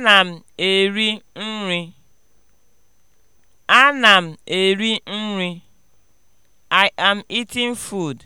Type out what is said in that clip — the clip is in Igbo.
Ana m eri nri. Ana m eri nri. I am eating food.